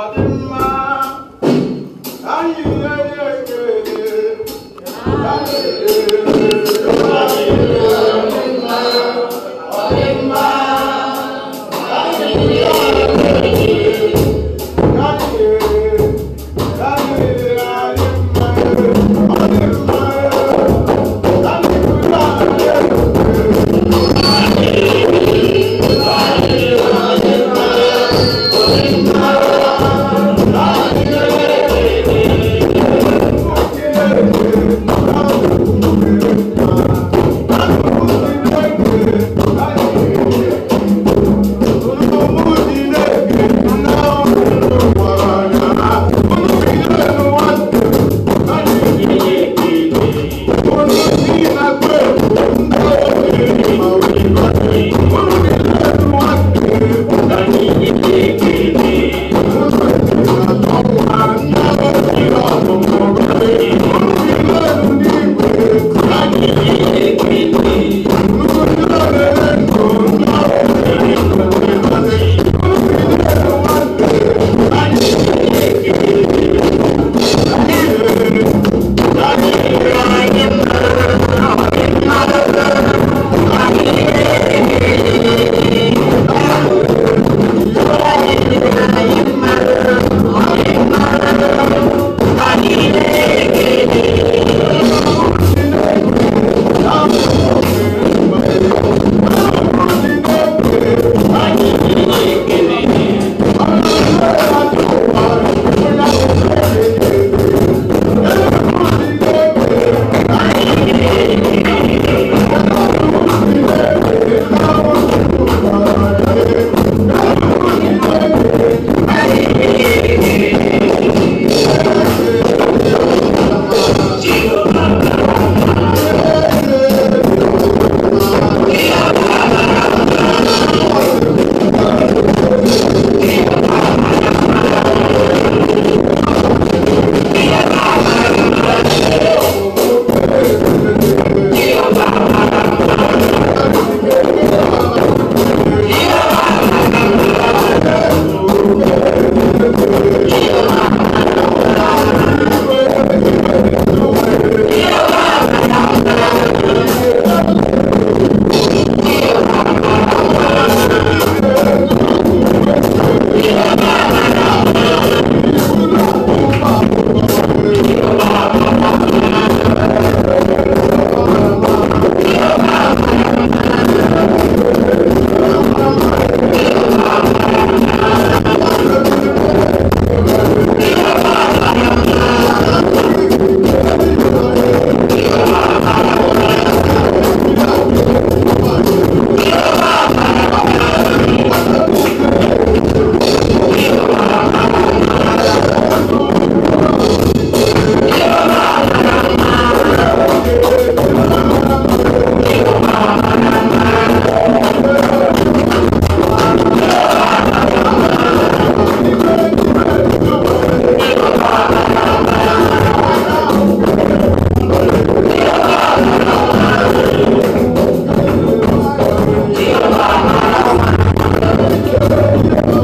ọdịmma anyị ¡Gracias!